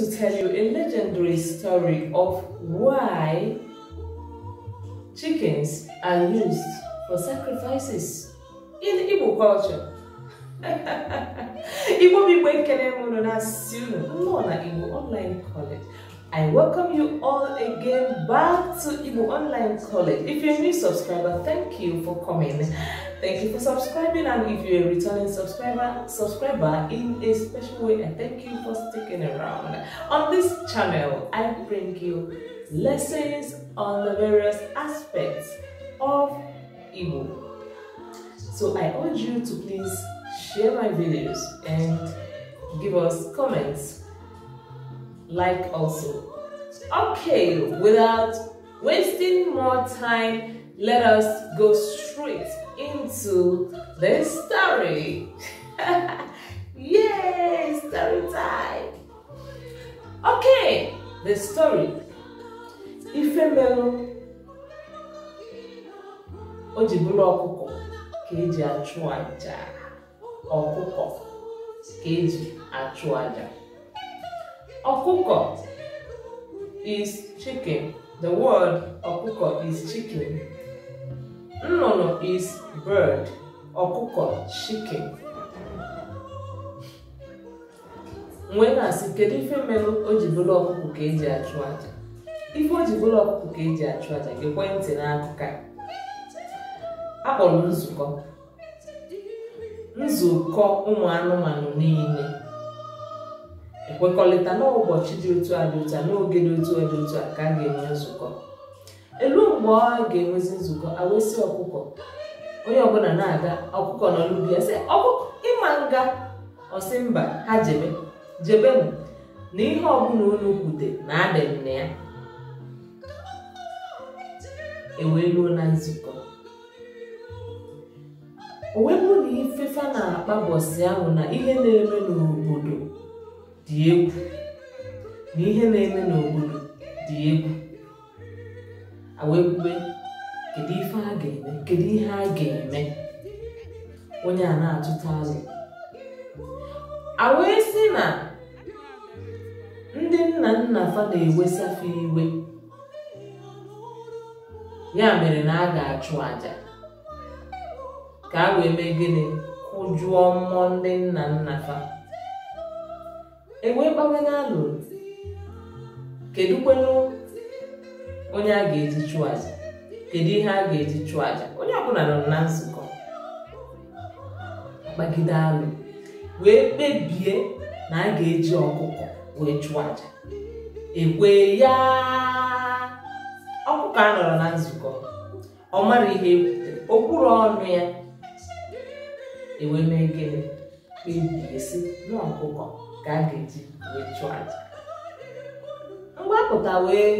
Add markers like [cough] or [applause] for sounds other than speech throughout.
to tell you a legendary story of why chickens are used for sacrifices in Igbo culture. [laughs] Igbo people ekele m ụlọ na-asị ụlọ nnọọ na Igbo online college I welcome you all again back to Igbo Online College. If you're a new subscriber, thank you for coming. Thank you for subscribing and if you're a returning subscriber, subscriber in a special way and thank you for sticking around. On this channel, I bring you lessons on the various aspects of Igbo. So I urge you to please share my videos and give us comments like also. Okay, without wasting more time, let us go straight into the story. [laughs] Yay, story time. Okay, the story. Ifemelu o ji bụrụ ọkụkọ keji achụ aja ọkụkọ ka achụ aja Ọkụkọ is chicken. The word ọkụkọ is chicken. Nnụnụ is bird. Ọkụkọ chicken. Mgbe na-asị kedu ife merụ o ji bụrụ ọkụkọ ka eji achụ aja? Ife o ji bụrụ ọkụkọ ka eji achụ aja gị kwee ntị n'akụkọ akpọrọ nzukọ nzukọ ụmụ anụmanụ niile nkwekọrịta n'ụbọchị dị otu a dị otu a n'oge dị otu a dị otu a ka a ga-enwe nzukọ elu mgbe ọ ga-enwezi nzukọ awesị ọkụkọ onye ọbụla na-aga ọkụkọ nọ n'ubi ya sị ọkụkọ ịma nga ọsị mba ha jebe jebe m na ihe ọbụla unu kwute na adị na ya eweluo na nzukọ o wee na ifefa na-akpa bọsị ahụ na ihe na-eme n'obodo dị egwu na ihe na-eme n'obodo dị egwu wee kedu ife a ga-eme kedu ihe a ga-eme onye a na-atụta azụ a wee sị na ndị nna nna fa na-ewesafe iwe ya mere na a ga-achụ aja ka a wee mee gịnị kwụjụọ mmụọ ndị nna nna fa enwe mgbanwe na alụrụ kedu kwenụ onye a ga-eji chụọ aja kedu ihe a ga-eji chụọ aja onye ọbụla nọ na nzukọ gbagide alụ wee kpebie na a ga-eji ọkụkọ wee chụọ aja ekwe ya ọkụkọ a nọrọ na nzukọ ọ mara ihe ekwutere okwuru ọnụ ya ewee mee gịnị kpebie si n'ọkụkọ ka a ga-eji wee chụọ aja mgbapụta wee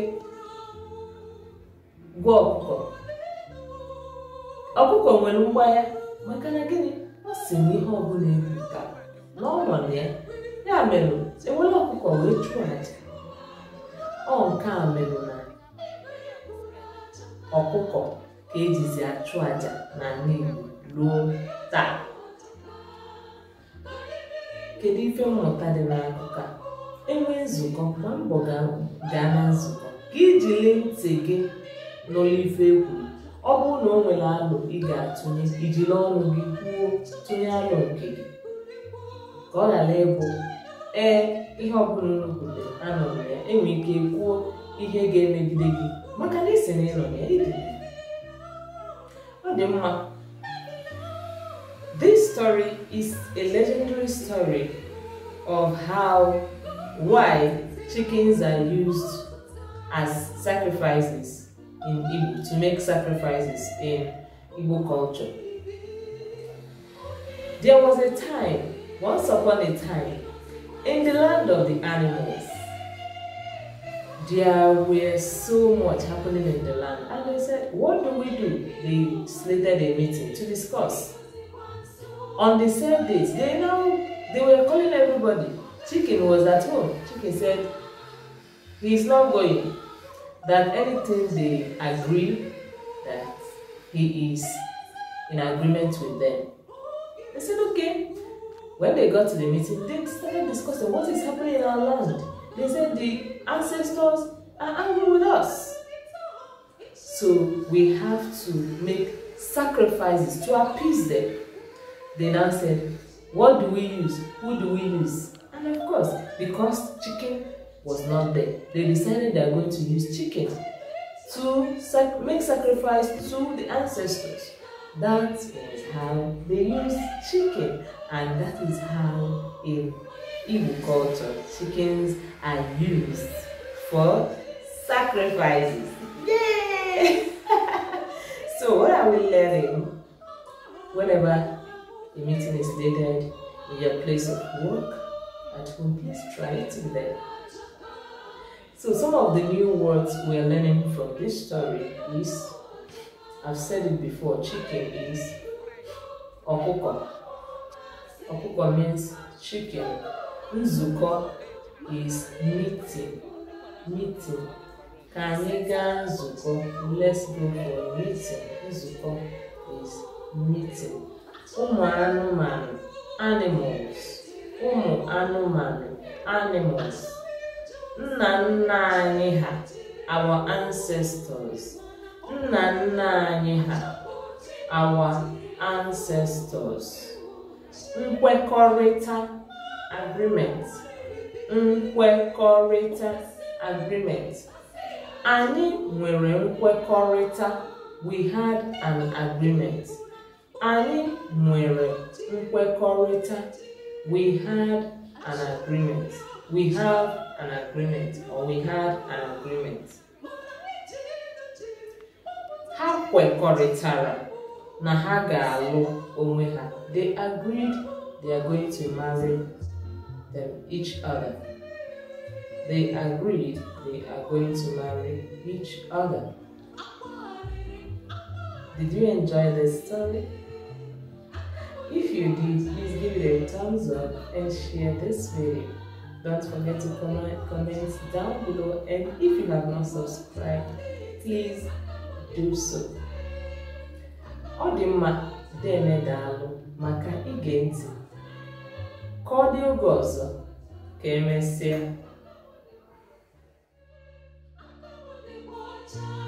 gwọọ ọkụkọ ọkụkọ nwere mgbagha maka na gịnị ọ si na ihe ọbụla ebuka ka ọ na ya ya mere ewere ọkụkọ wee chụọ aja ọ nke a mere na ọkụkọ ka ejizi achụ aja na ala ruo taa kedu ife mmụta dị n'akụkọ a enwee nzukọ ma mbọ gaa na nzukọ ka iji lee ntị gị n'ụlọ ife egwu ọ bụrụ na o nwere alụ ị ga-atụnye ijiri ọnụ gị kwuo tụnye alụ nke gị ka ọ ghara ịbụ ee ihe ọbụla nrukwute anọ na ya enwere ike kwuo ihe ga-emegide gị maka na ị sị na ịnọ ya ọ dị mma story is a legendary story of how, why chickens are used as sacrifices in Igbo, to make sacrifices in Igbo culture. There was a time, once upon a time, in the land of the animals, there were so much happening in the land. And they said, what do we do? They slated a meeting to discuss. On the same date, they now they were calling everybody. Chicken was at home. Chicken said he is not going. That anything they agree that he is in agreement with them. They said okay. When they got to the meeting, they started discussing what is happening in our land. They said the ancestors are angry with us. So we have to make sacrifices to appease them. They now said, what do we use? Who do we use? And of course, because chicken was not there, they decided they are going to use chicken to sac make sacrifice to the ancestors. That is how they use chicken, and that is how in Igbo culture chickens are used for sacrifices. Yay! [laughs] so what are we learning? Whenever the meeting is dated in your place of work. At home, please try it in there. So some of the new words we are learning from this story is, I've said it before, chicken is okuko. Okuko means chicken. Nzuko is meeting. Meeting. Kaniga nzuko. Let's go for meeting. Nzuko is meeting ụmụ anụmanụ animals ụmụ anụmanụ animals nna nna anyị ha our ancestors nna nna anyị ha our ancestors nkwekọrịta agreement nkwekọrịta agreement anyị nwere nkwekọrịta we had an agreement anyị nwere nkwekọrịta we had an agreement we have an agreement or we had an agreement ha kwekọrịtara na ha ga-alụ onwe ha they agreed they are going to marry them each other they agreed they are going to marry each other did you enjoy this story If you did, please give it a thumbs up and share this video. Don't forget to comment, comment down below and if you have not subscribed, please do so. Ọ dị mma dene daalụ maka ige ntị. Ka ọ dị oge